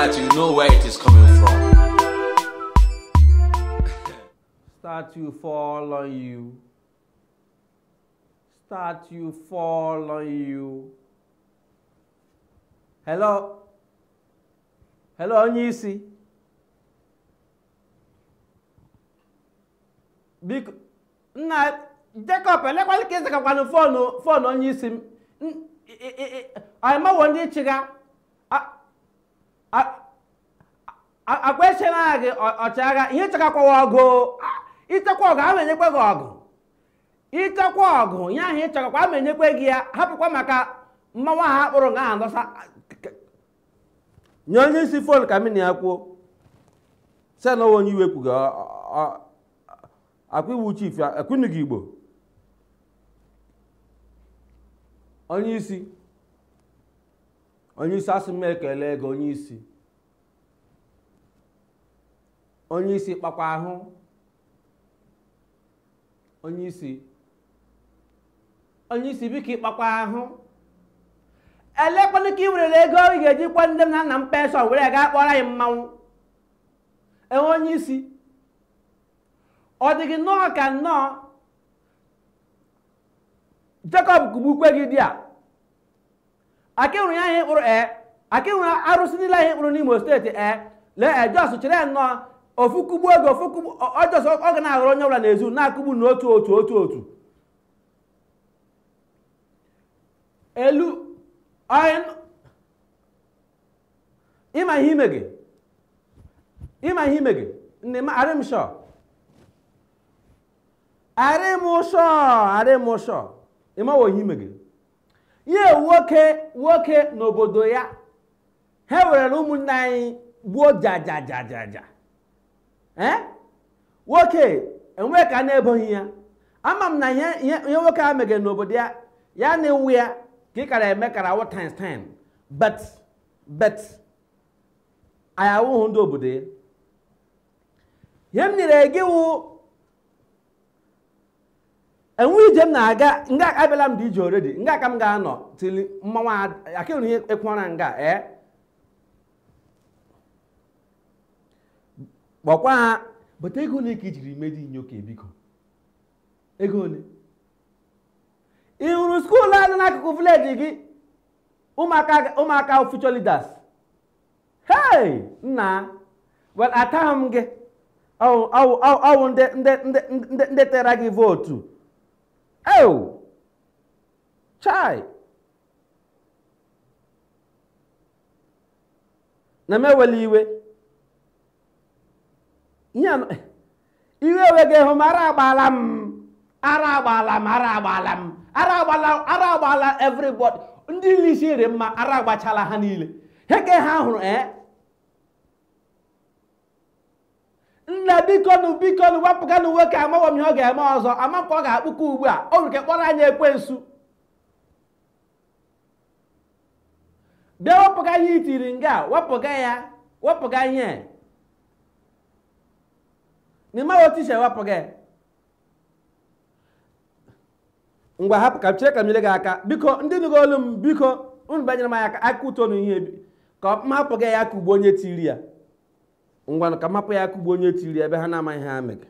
that you know where it is coming from. Start you fall on you. Start you fall on you. Hello? Hello, onye isi? Biko, nna Jacob elekwala ka ịzakakwanụ fon fon onye isi m. Anyị mawo ndị chịga. akpaechela gị ọchịagha ihe ịchọkakwawa ọgụ ịchekwa ọgụ ama enyekwe gị ọgụ ịchekwa ọgụ ya ahụ ịchọkakwa ama enyekwe gị ya hapụkwa maka mmanwụ ha kpụrụ nga ahụ dọsa nye onye isi fon ka mini ya kwuo sena onwe onye iwe kwughị akwa iwu chief ekwunughị igbo onye isi onye isi asị m ekele gị onye isi onye isi kpakwa ahụ onye isi onye isi biko ịkpakwa ahụ elekwanụ ka ị werere ego ị ga-eji kwa ndị m na nna m penshọn were gaa kpọrọ anyị mmanwụ enwe onye isi ọ dịghị nnọọ ka nnọọ Jekọb kụgbukwe gị di a aka enwere ya ihe mkpụrụ ee eh. aka enwere arụsị niile ihe mkpụrụ n'Imo steeti ee eh. lee e eh, jos chere nnọọ ofu kugbu oge ofu kugbu ọjọs ọ ga na-aghọrọ onye ọbụla n'ezu na-akụgbu n'otu otu otu otu elu ịma ihe ime gị ịma ihe ime gị nne m arị m shọ arị m shọ arị m shọ ịmawo ihe ime gị ihe nwoke nwoke n'obodo ya ha were ụmụnne anyị gbuo jajajajaja nwoke eh? enwe ka na-eboghị ya ama m na ihe nwoke a megere n'obodo ya ya na iwu ya ka ị kara eme kara awụ times bet bet ndị obodo ya ihe m nyere gị wụ enwe ije m na-aga nga abịala m dị ije oredi nga ka m ga-anọ tili mmanwụ akịrị ihe ekwụọra nga ee eh? kpọkwa ha bụta ego ole ka i jiri medi inyoka eh, biko ego ole ị hụrụ skuulu a n'akụkụ vileji gị ụmụaka future leaders hei nna well ataghị m gị ọwụ ndị tere gị vootu Oh, chai na m ewela iwe ihe iwe enweghị ịhụ m ara agbaala m ara agbaala ara agbaala ara agbaala everybody ndị lisi rị mma ara agbachala Heke niile ihe ha hụrụ ee eh? nne bikonu bikonu wepụganụ nwoke amaghọ m ihe ọ ga-eme ọzọ amakwa ọ ga-akpụkọ ugbu a o nwere kpọrọ anya ekwensu bịa wepụga ihe itiri nga wepụga ya wepụga ihe n'ime otu isi ewepụga ngwa hapụ ka chere ka m gị aka biko ndị nụgo olu m biko unu banyere m aka aka ụtọ na ihe ka m hapụ gị ya ka ugbo onye tiri ya ngwana ka mapụ ya akụgbu onye tiri ebe ha na-amaghị ha mega